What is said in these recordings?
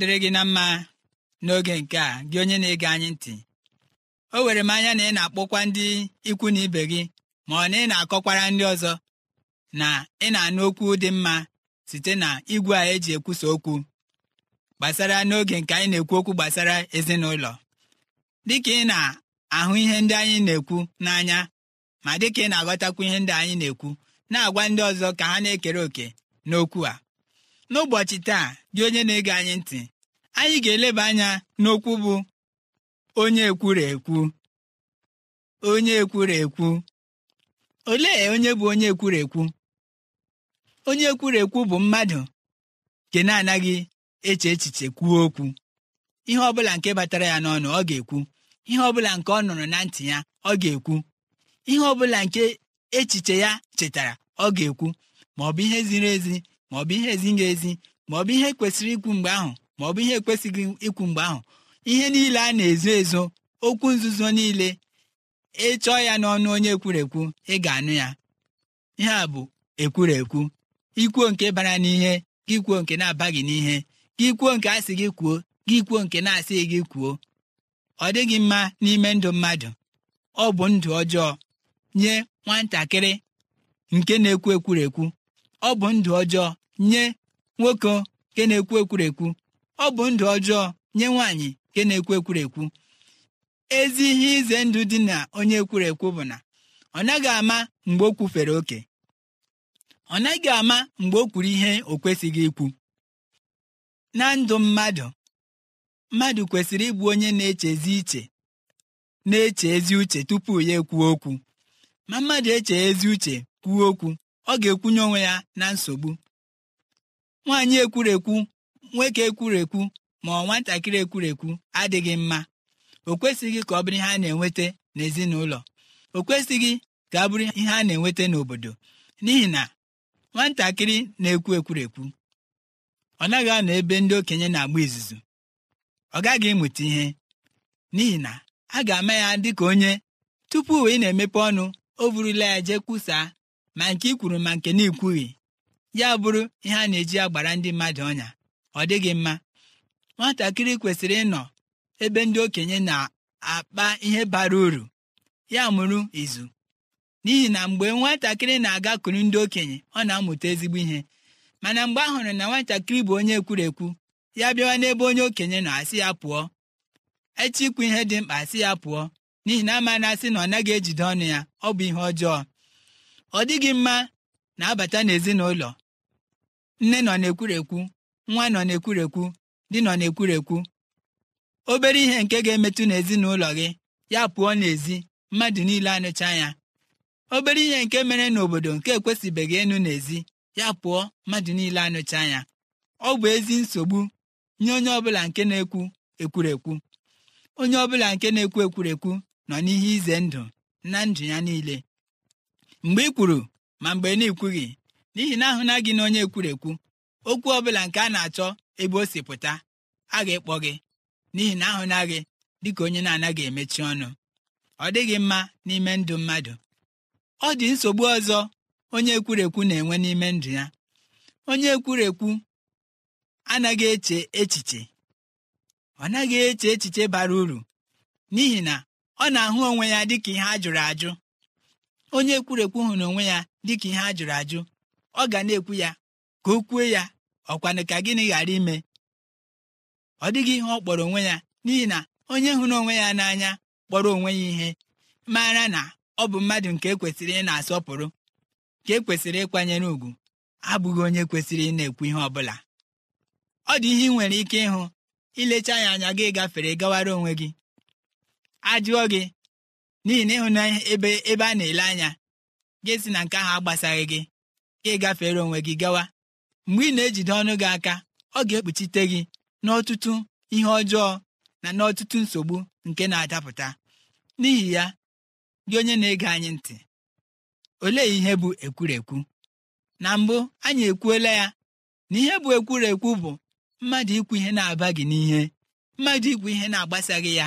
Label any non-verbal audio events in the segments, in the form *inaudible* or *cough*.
dịrị gị na mma n'oge nke a gị onye na-ege anyị ntị o were m anya na ị na-akpọkwa ndị ikwu na ibe gị ma ọ na ị na-akọkwara ndị ọzọ na ị na-anụ okwu dị mma site na igwe a eji ekwusa okwu gbasara n'oge nke anyị na-ekwu okwu gbasara ezinụlọ dịka ị na-ahụ ihe ndị anyị na-ekwu n'anya ma dịka ị na-aghọtakwu ihe ndị anyị na-ekwu na-agwa ndị ọzọ ka ha na-ekere òkè n'okwu a n'ụbọchị taa dị onye na-ege anyị ntị anyị ga-eleba anya n'okwu bụ onye ekwuru ekwu onye ekwuru ekwu olee onye bụ onye ekwuru ekwu onye ekwuru ekwu bụ mmadụ nke na-anaghị eche echiche kwuo okwu ihe ọ bụla nke batara ya n'ọnụ ọ ga-ekwu ihe ọ bụla nke ọ nụrụ na ntị ya ọ ga-ekwu ihe ọ bụla nke echiche ya chetara ọ ga-ekwu ma ọ bụ ihe ziri ezi bụ ihe ezighị ezi bụ ihe kwesịrị ikwu mgbe ahụ bụ ihe ekwesịghị ikwu mgbe ahụ ihe niile a na-ezo ezo okwu nzuzo niile ịchọọ ya n'ọnụ onye ekwurekwu ị ga-anụ ya ihe a bụ ekwurekwu ikwuo nke bara n'ihe gị kwuo nke na-abaghị n'ihe gị kwuo nke asị gị kwuo gị kwuo nke na-asị gị kwuo ọ dịghị mma n'ime ndụ mmadụ ọ bụ ndụ ọjọọ nye nwatakịrị nke na-ekwu ekwurekwu ọ bụ ndụ ọjọọ nye nwoke nke na-ekwu ekwurekwu ọ bụ ndụ ọjọọ nye nwaanyị nke na-ekwu ekwurekwu ezi ihe ize ndụ dị na onye ekwurekwu bụ na ọ naghị ama mgbe o kwufere oke ọ naghị ama mgbe o kwuru ihe o kwesịghị ikwu na ndụ mmadụ mmadụ kwesịrị ịbụ onye na-echezi iche na-eche ezi uche tupu ya ekwuo okwu ma mmadụ eche ezi uche kwuo okwu ọ ga-ekwunye onwe ya na nsogbu nwaanyị ekwurekwu nwoke ekwurekwu ma ọ nwatakịrị ekwurekwu adịghị mma o kwesịghị ka ọ bụrụ ihe a na-enweta n'ezinụlọ o kwesịghị ka ọ bụrụ ihe a na-enweta n'obodo n'ihi na nwatakịrị na-ekwu ekwurekwu ọ naghị anọ ebe ndị okenye na-agba izuzu ọ gaghị ịmụta ihe n'ihi na a ga-ama ya dị ka onye tupu ị na-emepe ọnụ o burula ya jee kwusaa ma nke i kwuru ma nke na-ekwughị ya bụrụ ihe a na-eji agbara ndị mmadụ ọnya ọ dịghị mma nwatakịrị kwesịrị ịnọ ebe ndị okenye na-akpa ihe bara uru ya mụrụ izu n'ihi na mgbe nwatakịrị na-agakuru ndị okenye ọ na-amụta ezigbo ihe mana mgbe a hụrụ na nwatakịrị bụ onye ekwurekwu ya bịawa n'ebe onye okenye nọ asị ya pụọ echi ikwu ihe dị mkpa asị ya pụọ n'ihi na ama na asị na ọ naghị ejide ọnụ ya ọ bụ ihe ọjọọ ọ dịghị mma na-abata n'ezinụlọ nne nọ na-ekwurekwu nwa nọ na-ekwurekwu di nọ na-ekwurekwu obere ihe nke ga-emetụ n'ezinụlọ gị ya pụọ n'ezi mmadụ niile anụcha ya obere ihe nke mere n'obodo nke ekwesịbeghị ịnụ n'ezi ya pụọ mmadụ niile anụcha ya ọ bụ ezi nsogbu nye onye ọbụla nke na-ekwu ekwurekwu onye ọbụla nke na-ekwu ekwurekwu nọ n'ihe ize ndụ na ndụ ya niile mgbe ị kwuru ma mgbe na-ekwughị n'ihi na ahụ na na onye ekwurekwu okwu ọ bụla nke a na-achọ ebe o si pụta a ga-ekpọ gị n'ihi na ahụ na ka onye na-anaghị emechi ọnụ ọ dịghị mma n'ime ndụ mmadụ ọ dị nsogbu ọzọ onye ekwurekwu na-enwe n'ime ndụ ya onye ekwurekwu anaghị eche echiche ọ naghị eche echiche bara uru n'ihi na ọ na-ahụ onwe ya dị ka ihe a jụrụ ajụ onye ekwurekwu hụrụ onwe ya dịka ihe a jụrụ ajụ ọ ga na-ekwu ya ka o kwuo ya ọkwanụ ka gịnị ghara ime ọ dịghị ihe ọ kpọrọ onwe ya n'ihi na onye hụrụ onwe ya n'anya kpọrọ onwe ya ihe mara na ọ bụ mmadụ nke ekwesịrị ị na-asọpụrụ ka ekwesịrị ịkwanyere ùgwù abụghị onye kwesịrị ị na-ekwu ihe ọ bụla ọ dị ihe ị nwere ike ịhụ ilecha ya anya gị gafere gawara onwe gị ajụọ gị n'ihi na ịhụ na ebe a na-ele anya gị si na nke ahụ agbasaghị gị ka ị gafere onwe gị gawa mgbe ị na-ejide ọnụ gị aka ọ ga-ekpuchite gị n'ọtụtụ ihe ọjọọ na n'ọtụtụ nsogbu nke na-adapụta n'ihi ya gị onye na-ege anyị ntị olee ihe bụ ekwurekwu na mbụ anyị ekwuola ya na ihe bụ ekwurekwu bụ mmadụ ikwu ihe na-aba gị n'ihe mmadụ ikwu ihe na-agbasaghị ya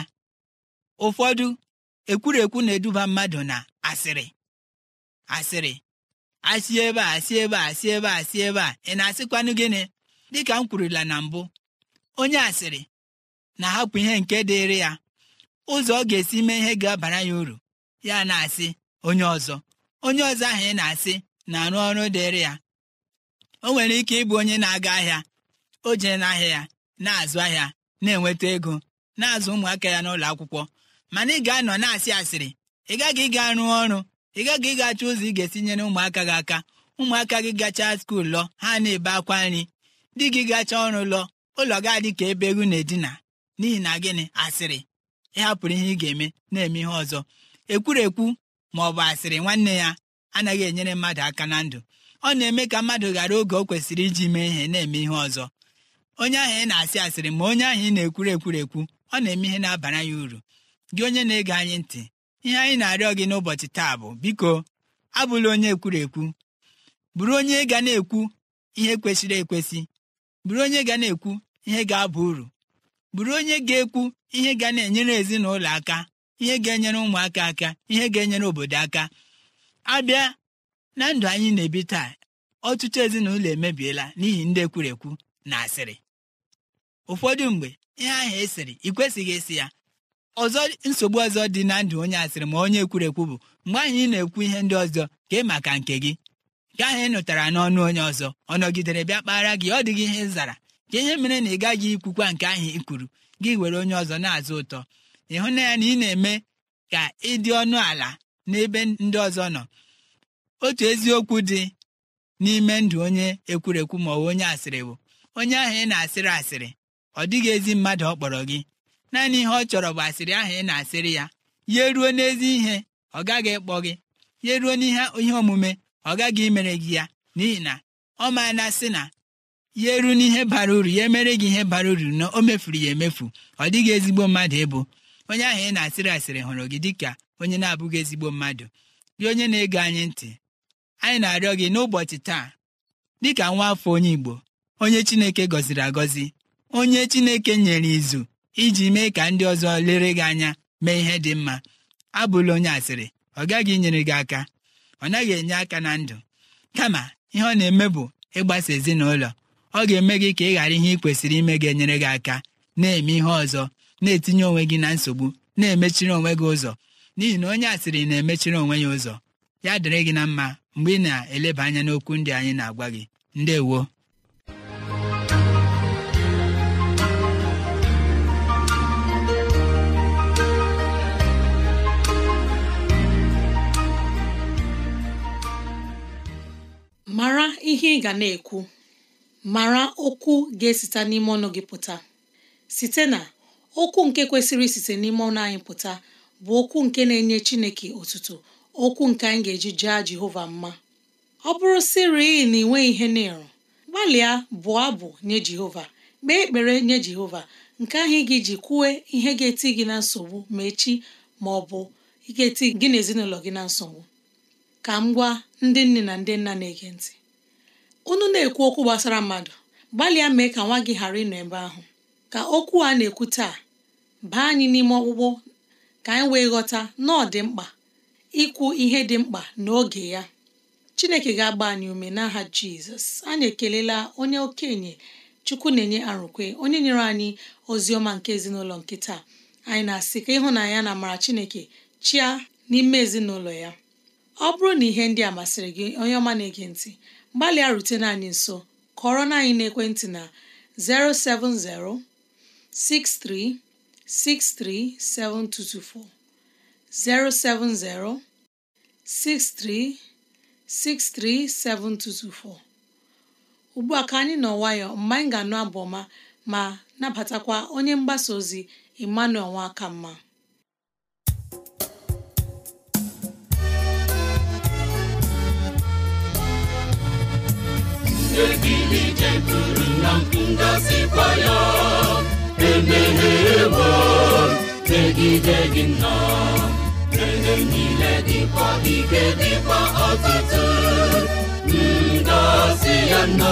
ụfọdụ ekwurekwu na-eduba mmadụ na asịrị asịrị asị ebe a asị ebe a asị ebe a asị ebe a ị na-asịkwanụ gịnị dịka m kwurula na mbụ onye asịrị na-ahapụ ihe nke dịịrị ya ụzọ ọ ga-esi mee ihe ga-abara ya uru ya na-asị onye ọzọ onye ọzọ ahụ ị na-asị na-arụ ọrụ dịịrị ya o nwere ike ịbụ onye na-aga ahịa o jee n'ahịa ya na-azụ ahịa na-enweta ego na-azụ ụmụaka ya n'ụlọ akwụkwọ mana ị ga-anọ na-asị asịrị ị gaghị ịga rụọ ọrụ ị gaghị ị ga-achọ ụzọ ị ga-esinyere ụmụaka gị aka ụmụaka gị gachaa skuul lọ ha na-ebe akwa nri di gị gacha ọrụ lọ ụlọ gị adị ka ebe egwu na-edina n'ihi na gịnị asịrị ịhapụrụ ihe ị ga-eme na-eme ihe ọzọ ekwurekwu ma ọ bụ asịrị nwanne ya anaghị enyere mmadụ aka na ndụ ọ na-eme ka mmadụ ghara oge o kwesịrị iji mee ihe na-eme ihe ọzọ onye ahụ ị na-asị asịrị ma onye ahụ ị na-ekwuru ekwurekwu ọ na-eme ihe na-abara ya uru gị onye na-ege anyị ntị ihe anyị na-arịọ gị n'ụbọchị taa bụ biko abụla onye ekwuru ekwu bụrụ onye ga na-ekwu ihe kwesịrị ekwesị bụrụ onye ga na-ekwu ihe ga abụ uru bụrụ onye ga-ekwu ihe ga na-enyere ezinụlọ aka ihe ga-enyere ụmụaka aka ihe ga-enyere obodo aka abịa na ndụ anyị na-ebi taa ọtụtụ ezinụlọ emebiela n'ihi ndị ekwurekwu na asịrị ụfọdụ mgbe ihe ahụ esiri ị kwesịghị ịsị ya ọzọ nsogbu ọzọ dị na ndụ onye asịrị ma onye ekwurekwu bụ mgbe anyị na-ekwu ihe ndị ọzọ ka ị maka nke gị nke ahụ ị nụtara n'ọnụ onye ọzọ ọ nọgidere bịa kpara gị ọ dịghị ihe zara ka ihe mere na ị gaghị ikwukwa nke ahụ ị kwuru gị were onye ọzọ na-azụ ụtọ ịhụ na ya na ị na-eme ka ịdị ọnụ ala n'ebe ndị ọzọ nọ otu eziokwu dị n'ime ndụ onye ekwurekwu ma ọ bụ onye asịrị bụ onye ahụ ị na-asịrị asịrị ọ dịghị ezi mmadụ ọ kpọrọ gị naanị ihe ọ chọrọ bụ asịrị ahụ ị na-asịrị ya ya ruo n'ezi ihe ọ gaghị ịkpọ gị ya ruo n'ihe ihe omume ọ gaghị imere gị ya n'ihi na ọ ma na-asị na ya ruo n'ihe bara uru ya emere gị ihe bara uru na o mefuru ya emefu ọ dịghị ezigbo mmadụ ịbụ onye ahụ ị na-asịrị asịrị hụrụ gị dịka onye na-abụghị ezigbo mmadụ gị onye na-ege anyị ntị anyị na-arịọ gị n'ụbọchị taa dịka nwa afọ onye Igbo onye Chineke gọziri agọzi onye Chineke nyere izu iji mee ka ndị ọzọ lere gị anya mee ihe dị mma abụla onye asịrị ọ gaghị inyere gị aka ọ naghị enye aka na ndụ kama ihe ọ na-eme bụ ịgbasa ezinụlọ ọ ga-eme gị ka ị ghara ihe ị kwesịrị ime gị enyere gị aka na-eme ihe ọzọ na-etinye onwe gị na nsogbu na-emechiri onwe gị ụzọ n'ihi na onye asịrị na-emechiri onwe ya ụzọ ya dịrị gị na mma mgbe ị na-eleba anya n'okwu ndị anyị na-agwa gị ndewo ihe ị ga na-ekwu mara okwu ga-esite n'ime ọnụ gị pụta site na okwu nke kwesịrị isite n'ime ọnụ anyị pụta bụ okwu nke na-enye Chineke otuto okwu nke anyị ga-eji jaa Jehova mma ọ bụrụ sịrị na ị nweghị ihe na-eru gbalịa bụọ abụ nye Jehova kpee ekpere nye Jehova nke ahụ ị ga kwue ihe ga-eti gị na nsogbu ma echi ma ọ bụ ga-eti gị na ezinụlọ gị na nsogbu ka m gwa ndị nne na ndị nna na-ege ntị unu na-ekwu okwu gbasara mmadụ gbalịa mee ka nwa gị ghara ịnọ ebe ahụ ka okwu a na-ekwu taa baa anyị n'ime ọkpụkpụ ka anyị wee ghọta na ọ dị mkpa ikwu ihe dị mkpa n'oge ya chineke ga-agba anyị ume n'aha jizọs anyị ekelela onye okenye chukwu na-enye arụkwe onye nyere anyị ozi ọma nke ezinụlọ nke taa anyị na-asị ka ịhụnanya na amara chineke chia n'ime ezinụlọ ya ọ bụrụ na ihe ndị a masịrị gị onye ọma na-ege ntị gbalịa rutene anyị nso kọrọ na anyị n'ekwentị na 070 6363 7224 070 6363 7224 ugbu a ka anyị nọ nwayọ mgbe anyị ga-anụ abụ ọma ma napatakwa onye mgbasa ozi Emmanuel Nwakamma eze gị ijekwuru na ya emeghewo megide gị nna ihe niile dịkwa ike dịkwa ọtụtụ ngọzi ya na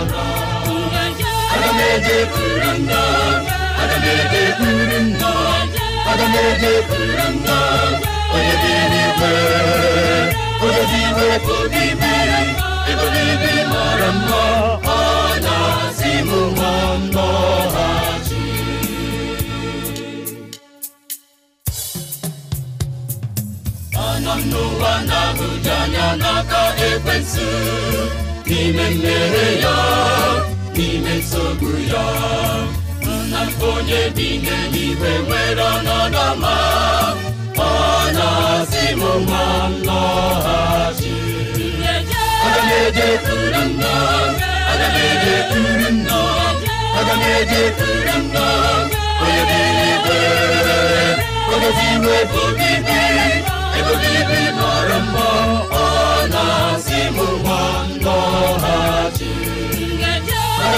ede buyurunlar Adam ede buyurunlar Adam ede buyurunlar O dediğini ver O dediğini ver Bu biber E bu biber maramma Ana na naka ekwensu ya n'ime nsogbu ya nna onye bi n'eluigwe nwere ọnọdụ ọma ọ na-asị m ma nlọghachi aga m ejekwuru nna aga m ejekwuru nna aga m ejekwuru nna onye bi n'igwe onye bi n'ebe obibi ebe obibi mara mma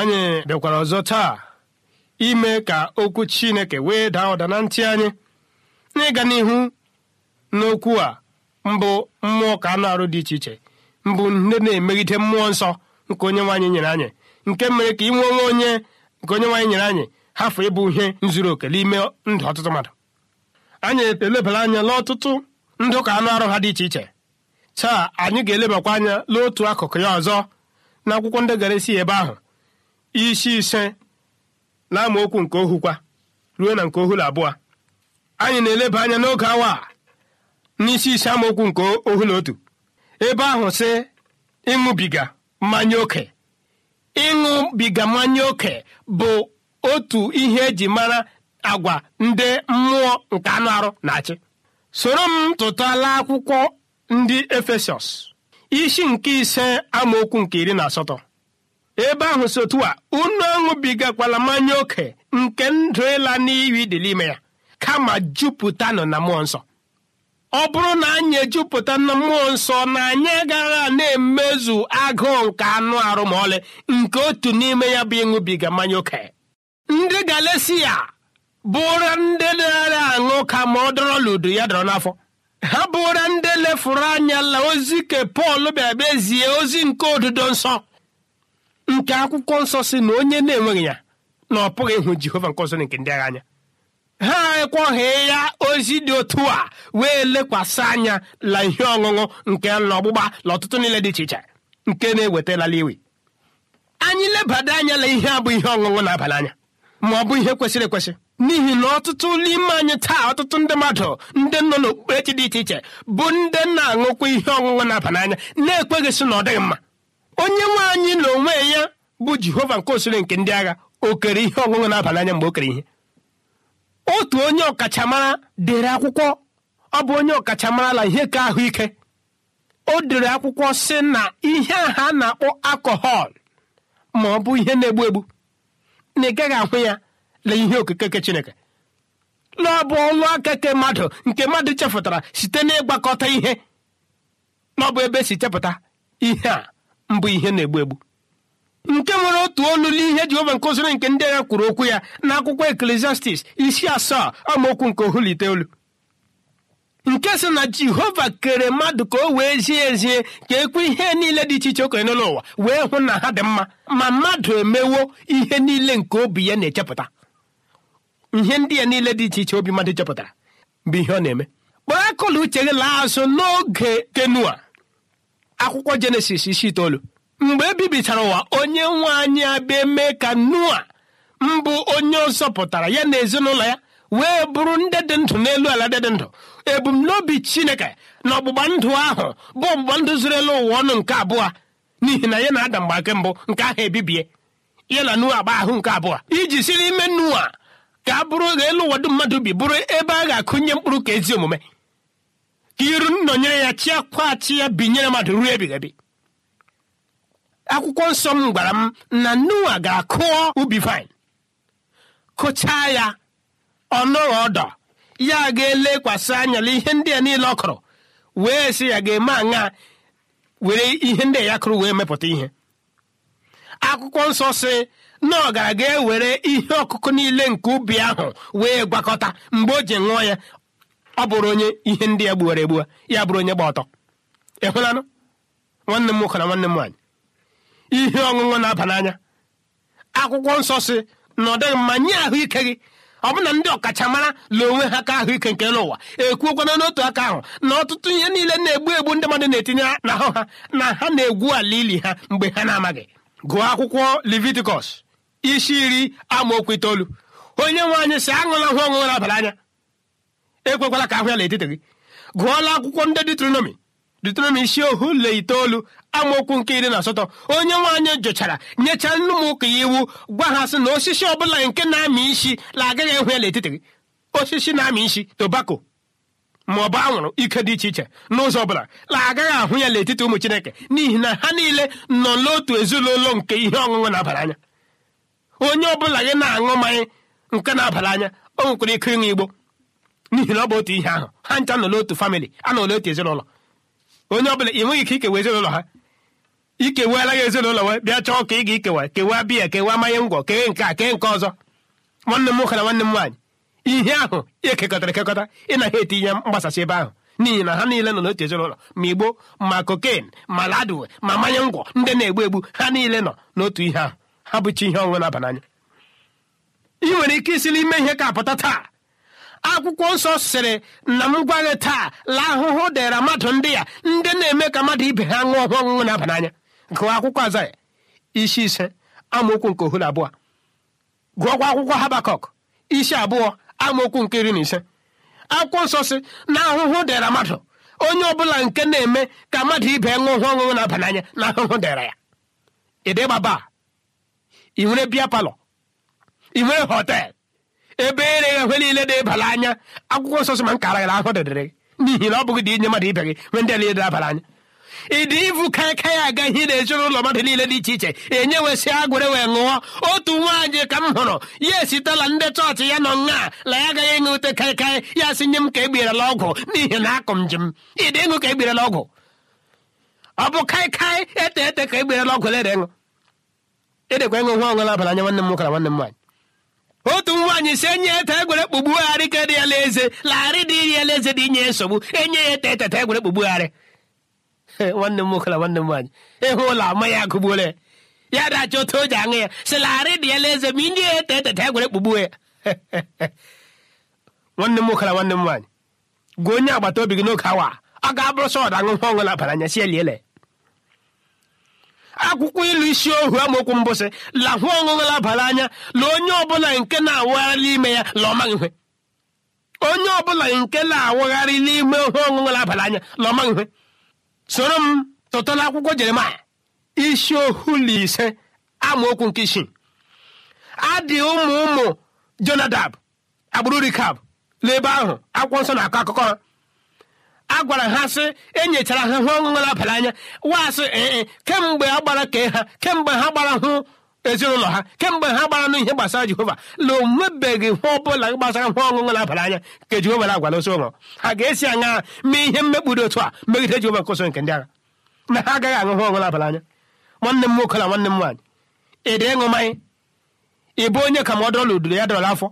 anyị bịakwara ọzọ taa ime ka okwu chineke wee daa ụda na ntị anyị n'ịga n'ihu n'okwu a mbụ mmụọ ka anụ arụ dị iche iche mbụ nne na-emegide mmụọ nsọ nke onye nwaanyị nyere anyị nke mere ka inwe onwe onye nke onye nwaanyị nyere anyị hafụ ịbụ ihe nzuru oke n'ime ndụ ọtụtụ mmadụ anyị elebara anya n'ọtụtụ ndụ ka anụ arụ ha dị iche iche taa anyị ga-elebakwa anya n'otu akụkụ ya ọzọ na akwụkwọ ndị gara isi ebe ahụ isi ise na nke ohukwa ruo na nke ohulu abụọ anyị na-eleba anya n'oge awa n'isi ise amaokwu nke ohulu otu ebe ahụ si ịṅụbiga mmanya oke ịṅụbiga mmanya oke bụ otu ihe eji mara agwa ndị mmụọ nke anụ arụ na-achị soro m tụtala akwụkwọ ndị efesọs isi nke ise amaokwu nke iri na asatọ ebe ahụ si otu a unu aṅụbigakwala mmanya ókè nke ndụ ịla n'iyi dị n'ime ya kama jupụtanụ na mmụọ nsọ ọ bụrụ na anyị ejupụta na mmụọ nsọ na anyị agaghị na-emezu agụụ nke anụ arụ ma ọlị nke otu n'ime ya bụ ịṅụbiga mmanya ókè ndị galesia bụra ndị na-arịa aṅụ ka ma ọ dọrọ ludo ya dọrọ n'afọ ha bụra ndị lefuru anya la ozi ke pọl bịa bezie ozi nke odudo nsọ nke akwụkwọ nsọ si na onye na-enweghị ya na ọ pụghị ịhụ jehova nke ọzọ nke ndị agha anya ha ekweghị ya ozi dị otu a wee lekwasị anya la ihe ọṅụṅụ nke ọgbụgba na ọtụtụ niile dị iche iche nke na-ewetalala iwe anyị lebada anya la ihe bụ ihe ọṅụṅụ na-aba n'anya ma ọ bụ ihe kwesịrị ekwesị n'ihi na ọtụtụ n'ime anyị taa ọtụtụ ndị mmadụ ndị nọ n'okpukperechi dị iche iche bụ ndị na-aṅụkwa ihe ọṅụṅụ na-aba na-ekweghị sị na ọ dịghị mma onye nwe anyị na onwe ya bụ jehova nke osiri nke ndị agha o kere ihe ọṅụṅụ n'abalị anya mgbe o kere ihe otu onye ọkachamara dere akwụkwọ ọ bụ onye ọkachamara la ihe ka ahụike o dere akwụkwọ sị na ihe aha na-akpọ akọhọl ma ọ bụ ihe na-egbu egbu na ị gaghị ahụ ya na ihe okike nke chineke na ọ bụ ọlụ aka ke mmadụ nke mmadụ chepụtara site n'ịgbakọta ihe na ọ bụ ebe e si chepụta ihe a mbụ ihe na-egbu egbu nke nwere otu olu n'ihe Jehova nkụziri nke ndị agha kwuru okwu ya na akwụkwọ Eklesiastis isi asaa amaokwu nke ohuliteolu. nke sị na Jehova kere mmadụ ka o wee zie ezie ka ekwe ihe niile dị iche iche okenye n'ụwa wee hụ na ha dị mma ma mmadụ emewo ihe niile nke obi ya na-echepụta ihe ndị ya niile dị iche iche obi mmadụ chepụtara bụ ihe ọ na-eme kpọọ akụla uche gị laa azụ n'oge kenua akwụkwọ jenesis isi itoolu mgbe e bibichara ụwa onye nwe anyị abịa mee ka noa mbụ onye ọzọ ya na ezinụlọ ya wee bụrụ ndị dị ndụ n'elu ala dị dị ndụ ebumnobi chineke na ọgbụgba ndụ ahụ bụ ọgbụgba ndụ zuru elu ụwa ọnụ nke abụọ n'ihi na ya na ada mgbake mbụ nke ahụ ebibie ya na noa agba ahụ nke abụọ iji si n'ime nua ka a bụrụ elu ụwa dum mmadụ bi bụrụ ebe a ga-akụnye mkpụrụ ka ezi omume ka iru nnọnyere ya chi akwati ya binyere mmadụ ruo ebighị akwụkwọ nsọ m gwara m na nnuwa ga-akụọ ubi vine kụchaa ya ọnụghị ọdọ ya ga-elekwasị anya na ihe ndị a niile ọ kụrụ wee sị ya ga-eme aṅa were ihe ndị ya kụrụ wee mepụta ihe akwụkwọ nsọ si na ọ gara ga ewere ihe ọkụkụ niile nke ubi ahụ wee gwakọta mgbe o ji ṅụọ ya ọ bụrụ onye ihe ndị ya gbuwara egbuwa ya bụrụ onye gba ọtọ ekwelanụ nwanne m nwoke na nwanne m nwaanyị ihe ọṅụṅụ na-aba n'anya akwụkwọ nsọ si na ọ dịghị mma nye ahụike gị na ndị ọkachamara la onwe ha ka ahụike nke n'ụwa ekwuokwana n'otu aka ahụ na ọtụtụ ihe niile na-egbu egbu ndị mmadụ na-etinye n'ahụ ha na ha na-egwu ala ili ha mgbe ha na-amaghị gụọ akwụkwọ leviticus isi iri amaokwu itoolu onye nwe anyị si aṅụla hụ ọṅụṅụ na-abara anya ekwekwala ka ahụ ya n'etiti gị gụọla akwụkwọ ndị detronomi detronomi isi ohu le itoolu amaokwu nke iri na asatọ onye nwaanyị jụchara nyechaa nne m ụka ya iwu gwa ha sị na osisi ọbụla nke na-amị isi la agaghị ehụ ya n'etiti gị osisi na-amị isi tobako ma ọ bụ anwụrụ ike dị iche iche n'ụzọ ọbụla la agaghị ahụ ya n'etiti ụmụ chineke n'ihi na ha niile nọ n'otu ezinụlọ nke ihe ọṅụṅụ na-abara anya onye ọbụla gị na-aṅụ mmanya nke na-abara anya o nwekwara ike ịṅụ igbo n'ihi na ọ bụ otu ihe ahụ ha ncha nọ n'otu famịlị anọ n'otu ezinụlọ onye ọbụla ị nweghị ike ikewa ezinụlọ ha ikeweela gị ezinụlọ wee bịa chọọ ka ị ga-ikewa kewaa biya kewe mmanya ngwọ kee nke a kee nke ọzọ nwanne m nwoke na nwanne m nwaanyị ihe ahụ ekekọtara ekekọta ịnaghị eti ihe mgbasasị ebe ahụ n'ihi na ha niile nọ n'otu ezinụlọ ma igbo ma kokain ma ladu ma mmanya ngwọ ndị na-egbu egbu ha niile nọ n'otu ihe ahụ ha bụcha ihe ọṅụṅụ na-aba n'anya ị nwere ike isi n'ime ihe ka apụta taa akwụkwọ nsọ sịrị na m gwa taa la ahụhụ dịra mmadụ ndị ya ndị na-eme ka mmadụ ibe ha ṅụọ ọhụụ ọṅụṅụ na-aba n'anya gụọ akwụkwọ azaya isi ise amaokwu nke ohu abụọ gụọkwa akwụkwọ habakọk isi abụọ amaokwu nke iri na ise akwụkwọ nsọ si na ahụhụ dịra mmadụ onye ọbụla nke na-eme ka mmadụ ibe ṅụọ ọhụụ ọṅụṅụ na-aba n'anya na ahụhụ dịra ya ịdịgbaba ị nwere bịa palọ ị nwere họtel ebe ere ghe niile na-ebara anya akwụkwọ nsọ sị nkara gị ahụ dịdịrị gị n'ihi na ọ bụghị dị inye mmadụ ibe gị nwe ndị niile na-abara anya ịdị ịvụ ka aka ya aga ihe na mmadụ niile dị iche iche enye wesị agwere wee ṅụọ otu nwaanyị ka m hụrụ ya esitela ndị chọọchị ya nọ nna la ya agaghị ịṅụ ute kaikai ya sị nye m ka egberela ọgwụ n'ihi na akụ m njem ịdị ịṅụ ka egberela ọgwụ ọ bụ kaikai ete ete ka egberela ọgwụ lere ịṅụ edekwa ịṅụ nwa ọṅụla abalị anya nwanne m nwoke na nwanne m nwaanyị otu nwaanyị si enye ya ete egwere kpụgbugharị ka dị ya leze lagharị dị iri ela eze dị inye ya nsogbu enye ya ete e eteta egwere kpụgbugharị *laughs* nwanne m nwoke nwanne m nwaanyị ịhụ ụlọ ama ya agụgbuola ya ya dachi otu o ji aṅụ ya si lagharị dị ela eze ma inye ya ete e eteta egwere kpụgbuo ya *laughs* nwanne m nwoke nwanne m nwaanyị gwa onye agbata obi gị n'oge awa ọ ga-abụrụ sọ ọda aṅụ ọṅụ na abara anya si eliele akwụkwọ ilu isi ohu amaokwu mbụsị lahụ ọṅụṅụ abalị anya la onye ọbụla nke na awụgharị ime ya laọmaghị ihe onye ọbụla nke na-awagharị n'ime ihe ọṅụṅụ abalị anya laọmaghị soro m tụtụla akwụkwọ jeremaya isi ohu na ise amaokwu nke a adị ụmụ ụmụ jonadab agbụrụ rikab n'ebe ahụ akwụkwọ nsọ na-akọ akụkọ ha a gwara ha sị enyechara ha hụ ọṅụṅụ na abalị anya wasị ee kemgbe a gbara kee ha kemgbe ha gbara hụ ezinụlọ ha kemgbe ha gbara n'ihe gbasara jehova na onwebeghị ihe ọbụla gbasara nwa ọṅụṅụ na anya nke jehova na-agwala ụsọ ụlọ ha ga-esi aṅa mee ihe mmekpụrụ otu a megide jehova nkụso nke ndị agha na ha agaghị aṅụ hụ ọṅụ na anya nwanne m nwoke na nwanne m nwaanyị ị ịṅụ mmanya ị bụ onye ka m ọ dọrọla udoro ya dọrọla afọ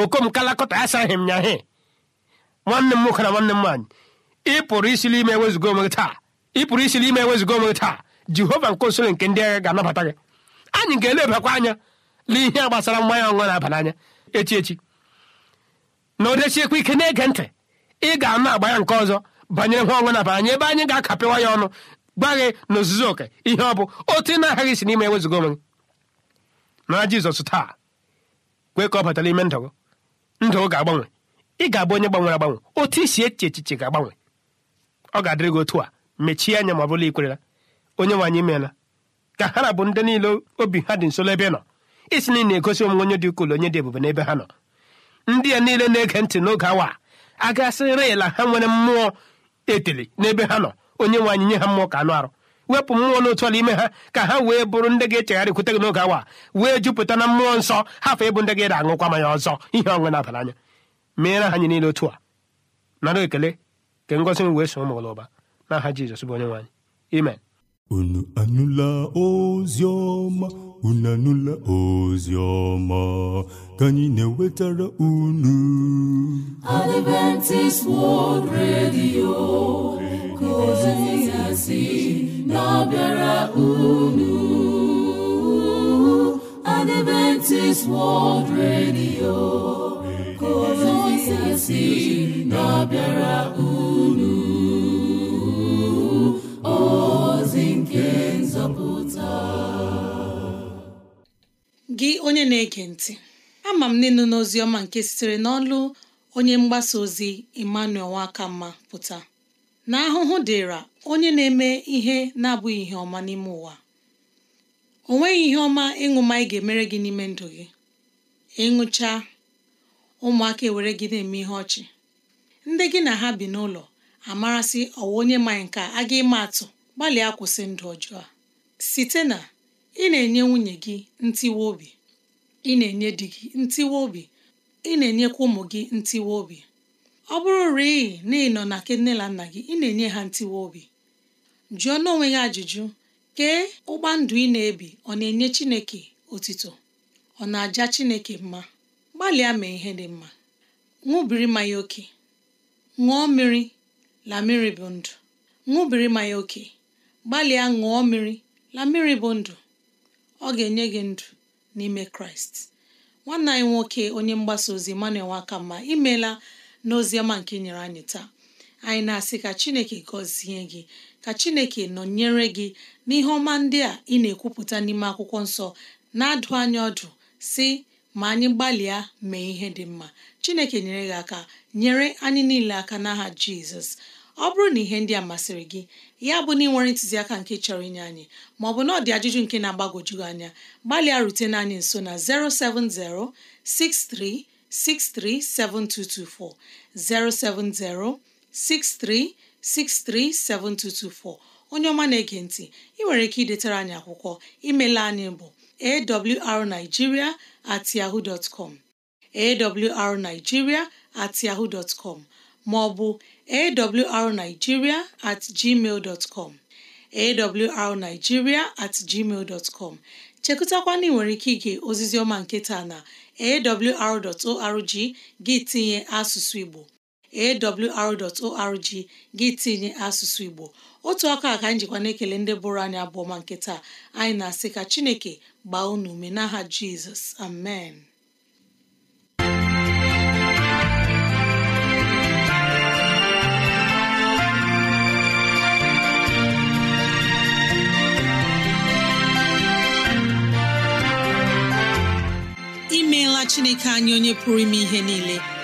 okom kalakọta asaghị m nya he nwanne m nwoke na nwanne m nwaanyị ị pụrụ isi n'ime ewezuga onwe taa ị pụrụ isi n'ime onwe taa jehova nke osoro nke ndị agha ga-anabata gị anyị ga-elebakwa anya n'ihe gbasara mmanya ọṅụṅụ na-aba echi echi na odechiekwa ike na-ege ntị ị ga-anụ agba ya nke ọzọ banyere nwa ọṅụṅụ na-aba ebe anyị ga-akapịwa ya ọnụ gba gị na ozuzo oke ihe ọ bụ otu ị na-aghaghị isi n'ime ewezuga onwe gị na jizọs taa kwe ka ọ batara ime ndụ ndụ ga-agbanwe ị ga-abụ onye gbanwere agbanwe otu isi echiche ga-agbanwe ọ ga-adịrị gị otu a mechie anya ma ọ bụla ikwerela onye nwe anyị ka ha na bụ ndị niile obi ha dị nso n'ebe nọ isi niile na-egosi omume onye dị ukwuu onye dị ebube n'ebe ha nọ ndị ya niile na-ege ntị n'oge awa a gasịrị ya la ha nwere mmụọ etili n'ebe ha nọ onye nwe nye ha mmụọ ka anụ arụ wepụ mmụọ n'otu ala ime ha ka ha wee bụrụ ndị ga-echegharị kwute gị n'oge awa wee jupụta na mmụọ nsọ hafa ịbụ ndị ga-ere aṅụkwa mmanya ọzọ ihe ọṅụ na-abara anya meere ha anyị niile otu a nara ekele nke ngọzi m wee so ụmụ ụlọ ụba n'aha jizọs bụ onye nwanyị. imen unu anụla ozi ọma unu anụla ozi ọma ka anyị na-ewetara unu Adventist World Radio ka ozi na-abịara unu Adventist World Radio ka ozi si na-abịara unu ozi nke nzọpụta gị onye na-ege ntị ama m n'ịnụ n'ozi ọma nke sitere n'ọlụ onye mgbasa ozi Emmanuel Nwakamma pụta na ahụhụ dịra onye na-eme ihe na-abụghị ihe ọma n'ime ụwa o nweghị ihe ọma ịṅụ ma ị ga-emere gị n'ime ndụ gị ịṅụcha ụmụaka ewere gị na-eme ihe ọchị ndị gị na ha bi n'ụlọ amarasị ọwa onye manye nke a ga ịma atụ gbalịa kwụsị ndụ ọjọọ a site na ị na-enye nwunye gị ntiwe obi ị na-enye di gị ntiwe obi ị na-enyekwa ụmụ gị ntiwe obi ọ bụrụ rịị na ị nọ na nke na nna gị ị na-enye ha ntiwe obi jụọ n'onwe gị ajụjụ kee ụgbọ ndụ ị na-ebi ọ na-enye Chineke otito ọ na-aja Chineke mma gbalịa mee ihe dị mma ṅụbiri mmanya oke ṅụọ mmiri la mmiri bụ ndụ ṅụbiri mmanya oke gbalịa ṅụọ mmiri la mmiri bụ ndụ ọ ga-enye gị ndụ n'ime kraịst nwanne anyị nwoke onye mgbasa ozi mma Nwakamma imeela n'oziọma nke nyere anyị taa anyị na-asị ka chineke gọzie gị ka chineke nọnyere gị n'ihe ọma ndị a ị na-ekwupụta n'ime akwụkwọ nsọ na-adụ anya ọdụ si ma anyị gbalịa mee ihe dị mma chineke nyere gị aka nyere anyị niile aka n'aha jizọs ọ bụrụ na ihe ndị a masịrị gị ya bụ na ị nwere ntụziaka nke chọrọ inye anyị bụ na ọ dị ajụjụ nke na-agbagwoju anya gbalịa rutena anyị nso na 070 6363 7224 070 7224 onye ọma na-ege ntị ị nwere ike idetara anyị akwụkwọ imela anyị bụ awrnigeria at yahoo dot com awrnigeria at yahoo dot com ma ọ bụ awrnigeria at gmail dot com awrnigeria chekụtakwana ị nwere ike ige ozizi ọma nke taa na awr.org gị tinye asụsụ Igbo awr.org gị tinye asụsụ Igbo otu aka ka njikwa na-ekele ndị bụrụ anyị abụọ ma nke anyị na-asị ka Chineke gbaa unu ume n'aha Jizọs amen imeela Chineke anyị onye pụrụ ime ihe niile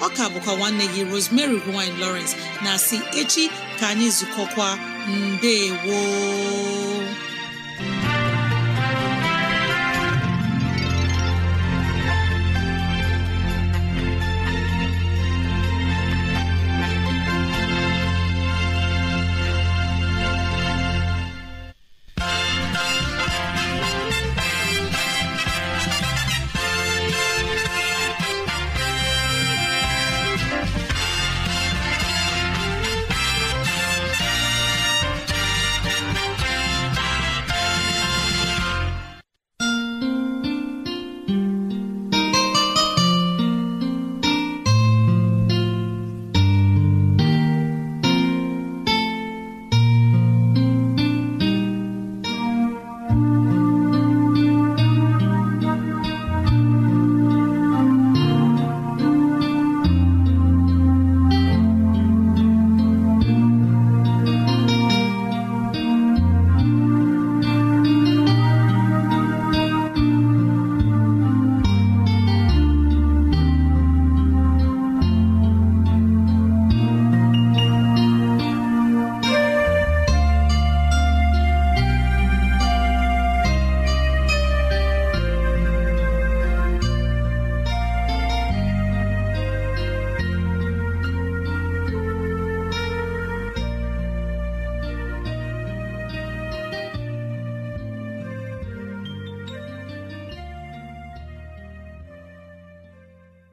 ọ ka bụkwa nwanne gị Rosemary gine Lawrence na si echi ka anyị zukọkwa mbe woo